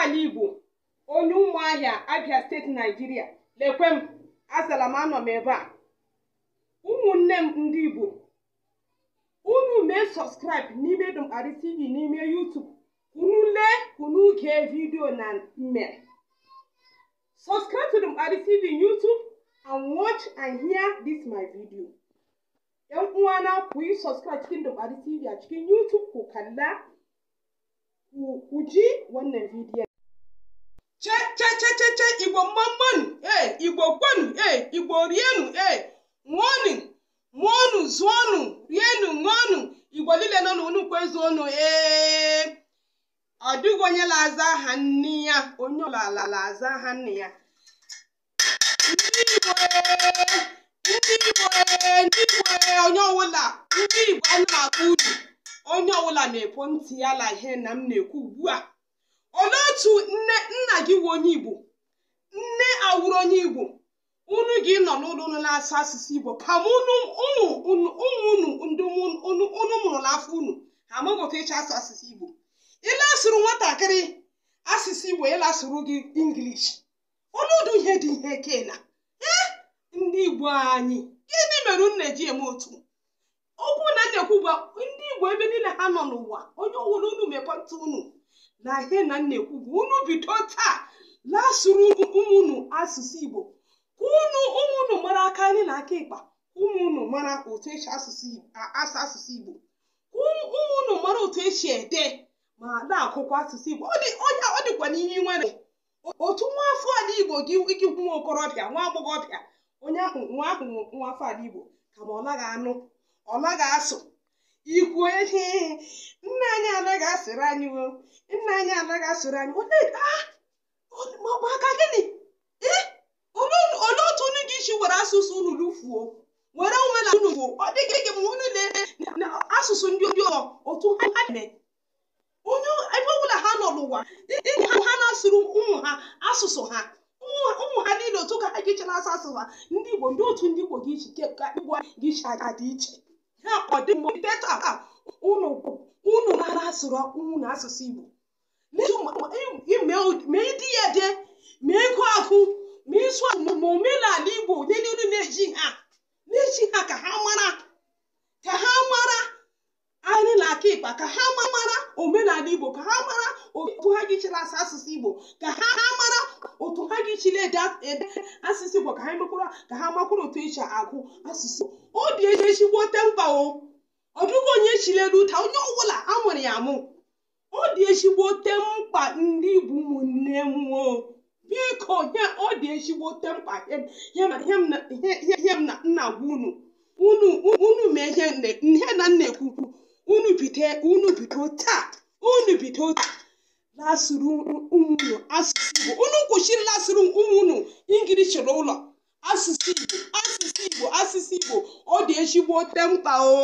ala Igbo onye Ụmụahịa, Abịa Steeti, Naijiria Lekwe m, asala m anọ m ebe a. Ụmụnne m ndị Igbo, unu mee sọskraịb n'ime Dumbarị TV n'ime YouTube unu lee unu gee vidiyo na mmere. Subscribe to Dumbarị TV YouTube and watch and hear this my video. ‘Yan uwana ku yi subscribe cikin Dumbarị TV a kalla ku ji wannan bidiyon. Ce ce ce ce ce Igbo mmanụ eh Igbo kwanu eh Igbo rienu eh nwonu nwonu zụọnụ rienu ṅụọnụ Igbo lile nọ n'unukwu ezuonu Eh. ọ dịghị onye na-aza aha nne ya onye ọlala la aza aha nne ya ndị Igbo eh, ndị Igbo eh, ndị Igbo eh, onye ọwụla ndị Igbo a na-akpọ uru onye ọbụla na-epo ntị ya la ihe na m na-ekwu ugbu a olee otu nne nna gị wu onye igbo nne awụrụ onye igbo unu gị nọ n'ụlọ unu na-asụ asụsụ igbo kama ụmụ unu ndị unu mụrụ n'afọ unu ha amụghị ịcha asụ asụsụ igbo ịlasụrụ nwatakịrị asụsụ igbo ịlasụrụ gị ingilish ọnọdụ ihe dị ihe kena ee ndị igbo anyị gịnị mere unu na-eji eme otu okwu na ekwu bụ ndị igbo ebe niile ha nọ n'ụwa onye ọwụrụ unu mepọta unu na ihe na ekwu bụ unu bido taa la-asụrụ ụmụnụ asụsụ igbo ka ụmụnụ mara aka anyị na aka ịkpa ụmụnụ mara otu esi asụ asụsụ igbo ụmụnụ mara otu esi ede ma na-akụkwa asụsụ igbo ọ dịkwa n'ihe nwere otu nwa afọ ala igbo gị ikikwu nwa okorobịa nwa agbọghọbịa onye ahụ nwa ahụ nwa afọ ala igbo ka ma ọ naghị anụ ọ naghị asụ ikwuo ihe nna anyị anaghị asịrị anyị o nna anyị anaghị asịrị anyị maka gịnị olee otu unu ga isi were asụsụ unu lufuo were na unu fuo ọ dịghị gị ma unu na asụsụ ndị ndị ọ otu ha na-eme onye ebe ọbụla ha nọ n'ụwa dịka ha na-asụrụ ụmụ ha asụsụ ha ụmụ ha niile otu ka ha ga-eche asụsụ ha ndị Igbo ndị otu ndị Igbo ga-iche ka Igbo ga-iche aga dị iche ha ọdịmdetọ a unu mara asụrụ ọkpụwụ na asụsụ Igbo mee di ya de ma ego agụ ma ịsụ ma omenala Igbo niile unu na-eji ha na-eji ha ka ha mara ka ha mara anyị na aka ịkpa ka ha mara omenala Igbo ka ha mara otu ha gị asụsụ Igbo ka ha mara otu ha gị ede asụsụ Igbo ka ha mekwara ka ha makwara otu eji agụ asụsụ obi eji esiwo tempa o ọ dịghị onye chilere ụta onye ọbụla amụrụ ya amụ ọ dị ezigbo ote mkpa ndị bụ ụmụnne m o biko ọ dị ezigbo ote mkpa ihe m na nna gwa unu unu mee ihe na nna ekwukwu unu bido taa unu bido lasụrụ ụmụ unu asụsụ Igbo unu lasụrụ ụmụ unu asụsụ Igbo yẹn ṣíwọ́ tẹ́mùtà o.